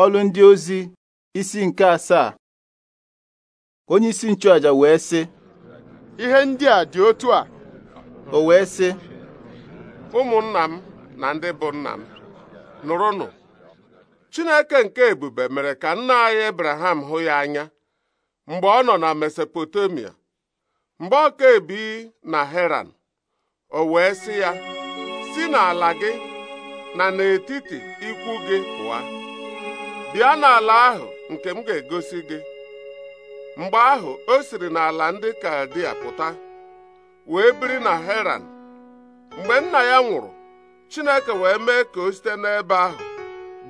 ọlụ ndị ozi isi nke asaa onye isi nchụaja wee sị ihe ndị a dị otu a o wee sị ụmụnna m na ndị bụ nna m nụrụnụ Chineke nke ebube mere ka nna anyị Abraham hụ ya anya mgbe ọ nọ na Mesopotamia mgbe ọ ka ebi na Heran o wee sị ya si n'ala gị na n'etiti ikwu gị pụa bịa n'ala ahụ nke m ga-egosi gị mgbe ahụ o siri n'ala ndị Kaldia pụta wee biri na Heran mgbe nna ya nwụrụ Chineke wee mee ka o site n'ebe ahụ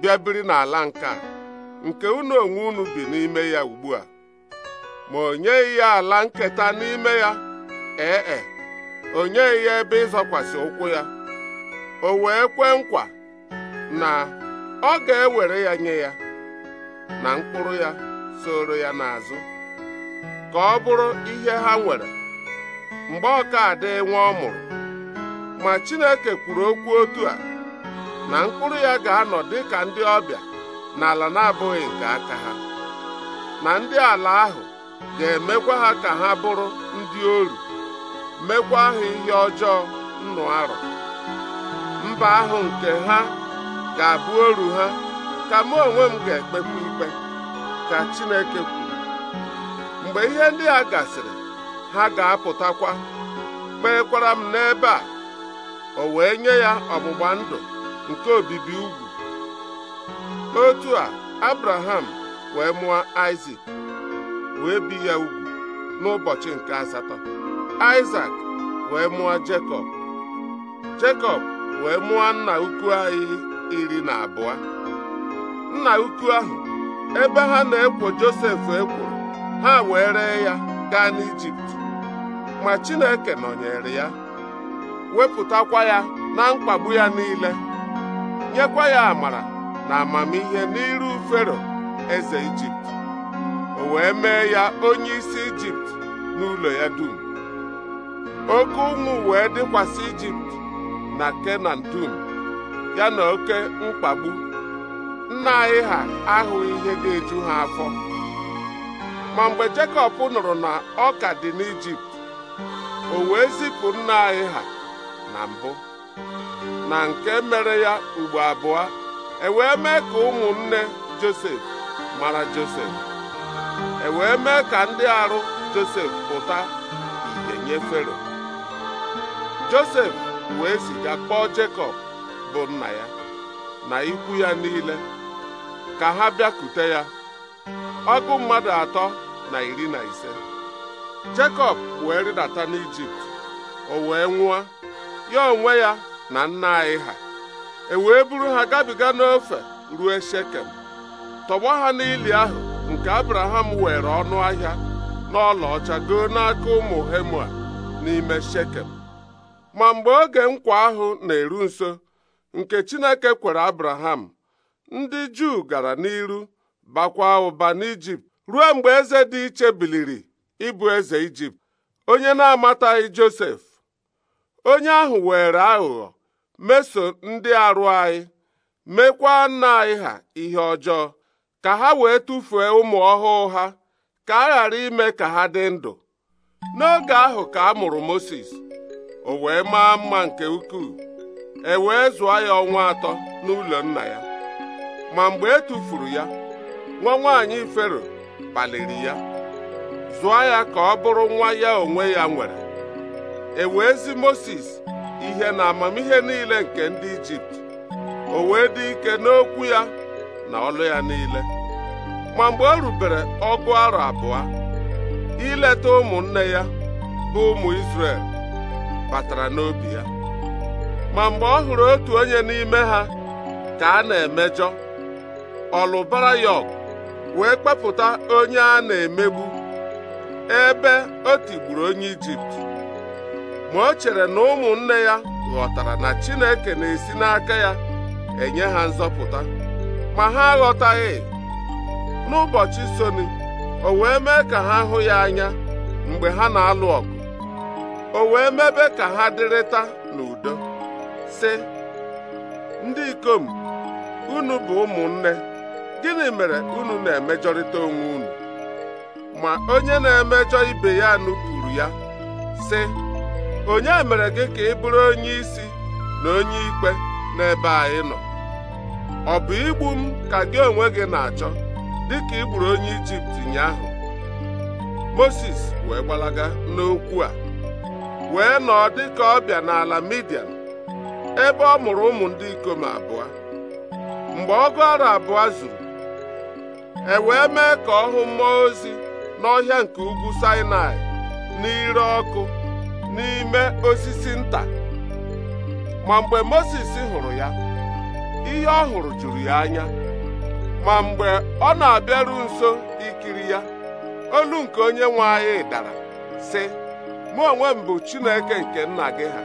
bịa biri n'ala nke a nke unu onwe unu bi n'ime ya ugbu a ma o nyeghị ya ala nketa n'ime ya ee e, o nyeghị ya ebe ịzọkwasị ụkwụ ya o wee kwee nkwa na ọ ga-ewere ya nye ya na mkpụrụ ya soro ya n'azụ ka ọ bụrụ ihe ha nwere mgbe ọka adị nwa ọ mụrụ ma Chineke kwuru okwu otu a na mkpụrụ ya ga-anọ dị ka ndị ọbịa n'ala na-abụghị nke aka ha na ndị ala ahụ ga-emekwa ha ka ha bụrụ ndị oru mekwa ha ihe ọjọọ nnụ arọ mba ahụ nke ha ga-abụ oru ha ka mụ onwe m ga-ekpekwa ikpe ka Chineke kwuru mgbe ihe ndị a gasịrị ha ga-apụtakwa kpeekwara m n'ebe a o wee nye ya ọgbụgba ndụ nke obibi ugwu otu a Abraham wee mụọ Isaac wee bi ya ugwu n'ụbọchị nke asatọ Isaac wee mụọ Jekọb Jekọb wee mụọ nna ukwu anyị iri na abụọ nna ukwu ahụ ebe ha na-ekwo Josef ekworo ha wee ree ya gaa n'Ijipt ma Chineke nọnyere ya wepụtakwa ya na mkpagbu ya niile nyekwa ya amara na amamihe n'iru Fero eze Ijipt o wee mee ya onye isi Ijipt n'ụlọ ya dum oke ụmụ wee dịkwasị Ijipt na Kenan dum ya na oke mkpagbu nna anyị ha ahụghị ihe ga-eju ha afọ ma mgbe Jekọb nụrụ na ọ ka dị n'Ijipt o wee zipụ nna anyị ha na mbụ na nke mere ya ugbo abụọ e wee mee ka ụmụnne Josef mara Josef e wee mee ka ndị arụ Josef pụta ihe nye Fero Josef wee ziga kpọọ Jekọb bụ nna ya na ikwu ya niile ka ha bịakute ya ọgụ mmadụ atọ na iri na ise Jekọb wee rịdata n'Ijipt o wee nwụọ ya onwe ya na nna anyị ha e wee buru ha gabiga n'ofe ruo Shekem tọgbọ ha n'ili ahụ nke Abraham were ọnụ ahịa ọcha goo n'aka ụmụ Hemua n'ime Shekem ma mgbe oge nkwa ahụ na-eru nso nke Chineke kwere Abraham ndị Juu gara n'iru bakwa ụba n'Ijipt ruo mgbe eze dị iche biliri ịbụ eze Ijipt onye na-amataghị Josef onye ahụ were aghụghọ meso ndị arụ anyị mekwaa nna anyị ha ihe ọjọọ ka ha wee tụfuo ụmụ ọhụụ ha ka a ghara ime ka ha dị ndụ n'oge ahụ ka a mụrụ Mozis o wee maa mma nke ukwuu e wee zụọ ya ọnwa atọ n'ụlọ nna ya ma mgbe e tufuru ya nwa nwaanyị fero kpaliri ya zụọ ya ka ọ bụrụ nwa ya onwe ya nwere ezi Moses ihe na amamihe niile nke ndị Ijipt o wee dị ike n'okwu ya na ọlụ ya niile ma mgbe o rubere ọgụ arọ abụọ ileta ụmụnne ya bụ ụmụ Izrel batara n'obi ya ma mgbe ọ hụrụ otu onye n'ime ha ka a na-emejọ ọlụbarayọk wee kpepụta onye a na-emegbu ebe o tigburu onye ijipt ma o chere na ụmụnne ya ghọtara na chineke na-esi n'aka ya enye ha nzọpụta ma ha aghọtaghị n'ụbọchị soni o wee mee ka ha hụ ya anya mgbe ha na-alụ ọgụ o wee mebe ka ha dịrịta n'udo si ndị ikom unu bụ ụmụnne gịnị mere unu na-emejọrịta onwe unu ma onye na-emejọ ibe ya nupụrụ ya sị onye mere gị ka ị bụrụ onye isi na onye ikpe n'ebe anyị nọ ọ bụ igbu m ka gị onwe gị na-achọ dịka ị gburu onye Ijipt ụnyaahụ Moses wee gbalaga n'okwu a wee nọọ dịka ọbịa n'ala Midian ebe ọ mụrụ ụmụ ndị ikom abụọ mgbe ọgụ ọrụ abụọ zuru e wee mee ka ọ hụ mmụọ ozi n'ọhịa nke ugwu Sinai n'ire ọkụ n'ime osisi nta ma mgbe Mozis hụrụ ya ihe ọ hụrụ juru ya anya ma mgbe ọ na-abịaru nso ikiri ya olu nke onye nwe anyị dara sị mụ onwe m bụ Chineke nke nna gị ha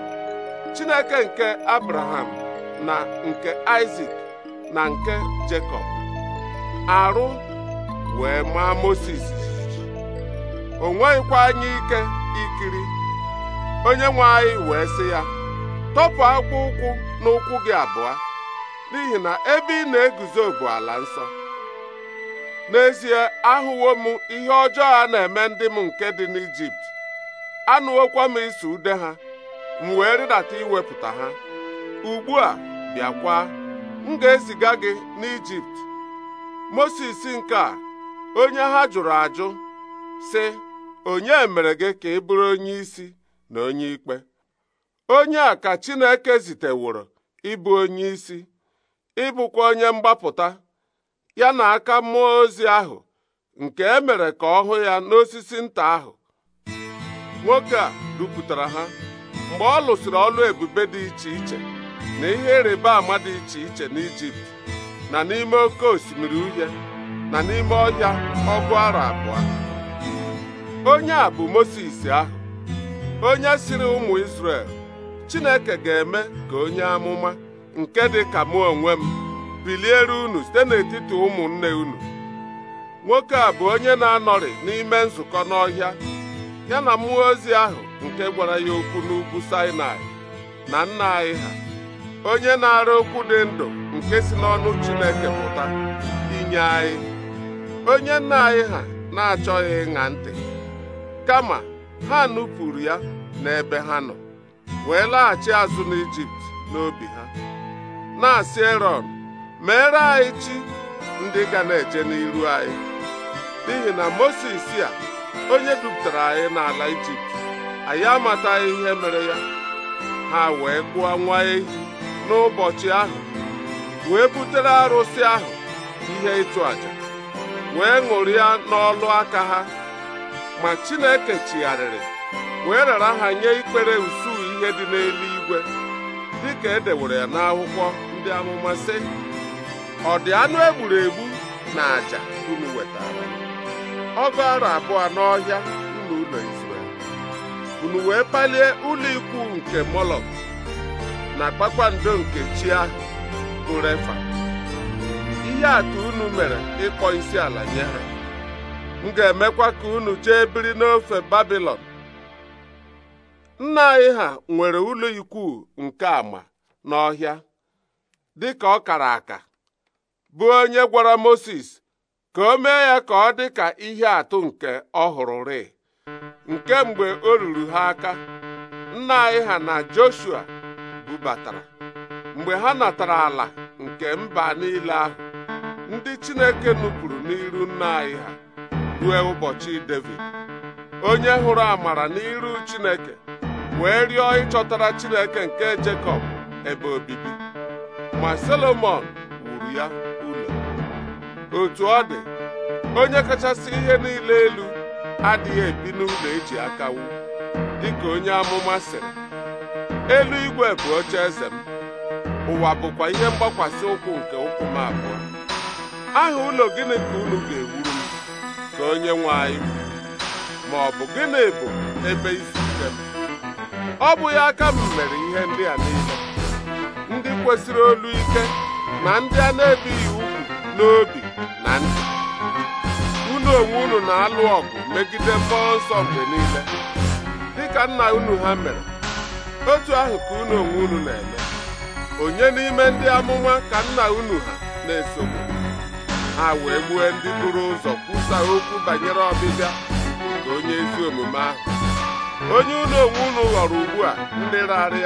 Chineke nke Abraham na nke Isaac na nke Jekọb arụ wee maa Mozis o nweghịkwa anya ike ikiri onye nwe anyị wee sị ya tọpụ akpụ ụkwụ n'ụkwụ gị abụọ n'ihi na ebe ị na-eguzo bụ ala nsọ n'ezie ahụwo m ihe ọjọọ a na-eme ndị m nke dị n'Ijipt anụwokwa m iso ude ha m wee rịdata iwepụta ha ugbu a bịakwa m ga-eziga gị n'Ijipt Mosis nke a onye ha jụrụ ajụ sị onye mere gị ka ị bụrụ onye isi na onye ikpe onye a ka Chineke ziteworo ịbụ onye isi ịbụkwa onye mgbapụta ya na aka mmụọ ozi ahụ nke emere ka ọ hụ ya n'osisi nta ahụ nwoke a dupụtara ha mgbe ọ lụsịrị ọlụ ebube dị iche iche na ihe ịrịba ama dị iche iche n'Ijipt na n'ime oke osimiri uhie na n'ime ọhịa ọgụ arọ abụọ onye a bụ Mozis ahụ onye siri ụmụ Izrel Chineke ga-eme ka onye amụma nke dị ka mụ onwe m biliere unu site n'etiti ụmụnne unu nwoke a bụ onye na-anọrị n'ime nzukọ n'ọhịa ya na mmụọ ozi ahụ nke gwara ya okwu n'ugwu Sinai na nna anyị ha onye na-ara okwu dị ndụ nke si n'ọnụ Chineke pụta inye anyị onye nna anyị ha na-achọghị ịṅa ntị kama ha nupụrụ ya n'ebe ha nọ wee laghachi azụ n'Ijipt n'obi ha na-asị Erọn meere anyị chi ndị ga na-eje n'iru anyị n'ihi na moses a onye dupụtara anyị n'ala Ijipt anyị amataghị ihe mere ya ha wee kpụọ nwa ehi n'ụbọchị ahụ wee butere arụsị ahụ ihe ịchụ àjà wee ṅụrịa n'ọlụ aka ha ma Chineke chigharịrị wee rara ha nye ikpere usuu ihe dị n'eluigwe dịka e dewere ya n'akwụkwọ ndị amụma sị ọ dị anụ egburu egbu na àjà unu wetara ọgụ arọ abụọ n'ọhịa unu ụlọ Izrel unu wee palie ụlọ nke Molok na kpakpando nke chi ahụ ihe atụ unu mere ịkpọ isi ala nye ha m ga-emekwa ka unu jee biri n'ofe babilon nna anyị ha nwere ụlọ ikwu nke ama n'ọhịa dị ka ọ kara aka bụ onye gwara moses ka o mee ya ka ọ dị ka ihe atụ nke ọ hụrụ nke mgbe o ruru ha aka nna anyị ha na Joshua bubatara mgbe ha natara ala nke mba niile ahụ ndị Chineke nupụrụ n'iru nna anyị ha rue ụbọchị Devid onye hụrụ amara n'iru Chineke wee rịọ ịchọtara Chineke nke Jekọb ebe obibi ma Solomọn wuru ya ụlọ otu ọ dị onye kachasị ihe niile elu adịghị ebi n'ụlọ eji aka dị dịka onye amụma sịrị igwe bụ oche eze ụwa bụkwa ihe mgbakwasị ụkwụ nke ụkwụ m abụọ aha ụlọ gịnị ka unu ga-ewuru m ka onye nwe anyị ma ọ bụ gịnị bụ ebe isi ike m ọ bụghị aka m mere ihe ndị a niile ndị kwesịrị olu ike na ndị a na-ebighị ugwu n'obi na ndị unu onwe unu na-alụ ọgụ megide mmụọ nsọ mgbe niile dịka nna unu ha mere otu ahụ ka unu onwe unu na-eme onye n'ime ndị amụma ka nna unu ha na-esogbu ha wee gbuo ndị buru ụzọ kwusa okwu banyere ọbịbịa na onye ezi omume ahụ onye ụlọ onwe unu ghọrọ ugbu a ndị raara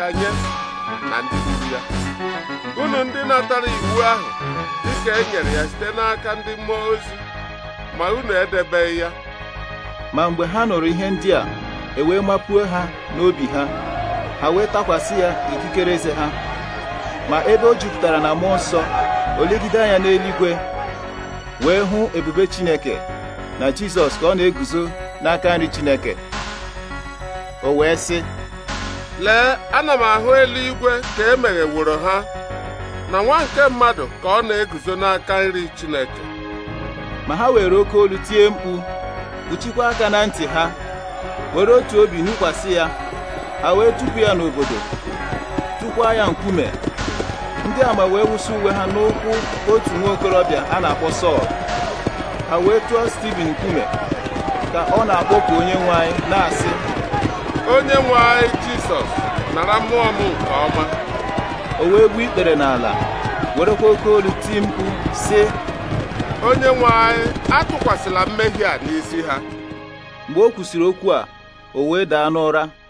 na ndị gburu ya unu ndị natara iwu ahụ dịka e nyere ya site n'aka ndị mmụọ ozi ma unu edebeghị ya ma mgbe ha nụrụ ihe ndị a e wee mapuo ha n'obi ha ha wee takwasị ya ikikere eze ha ma ebe o jupụtara na mmụọ nsọ o anya n'eluigwe wee hụ ebube Chineke na Jizọs ka ọ na-eguzo n'aka nri Chineke o wee sị lee ana m ahụ eluigwe ka e wụrụ ha na nwa nke mmadụ ka ọ na-eguzo n'aka nri Chineke ma ha were oke olu tie mkpu kpuchikwa aka na ntị ha were otu obi nụkwasị ya ha wee tụpụ ya n'obodo tụkwa ya nkume ndị ama wee wụsị uwe ha n'ụkwụ otu nwa okorobịa a na-akpọ Sọl ha wee tụọ Stiven nkume ka ọ na akpọpụ onye nwe anyị na-asị onye nwe anyị Jisọs nara mmụọ m nke ọma o wee gbuo ikpere n'ala werekwa oke olu ti mkpu sị onye nwe anyị atụkwasịla mmehie a n'isi ha mgbe o kwusịrị okwu a o wee daa n'ụra